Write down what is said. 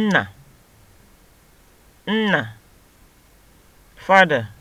nna (nna), father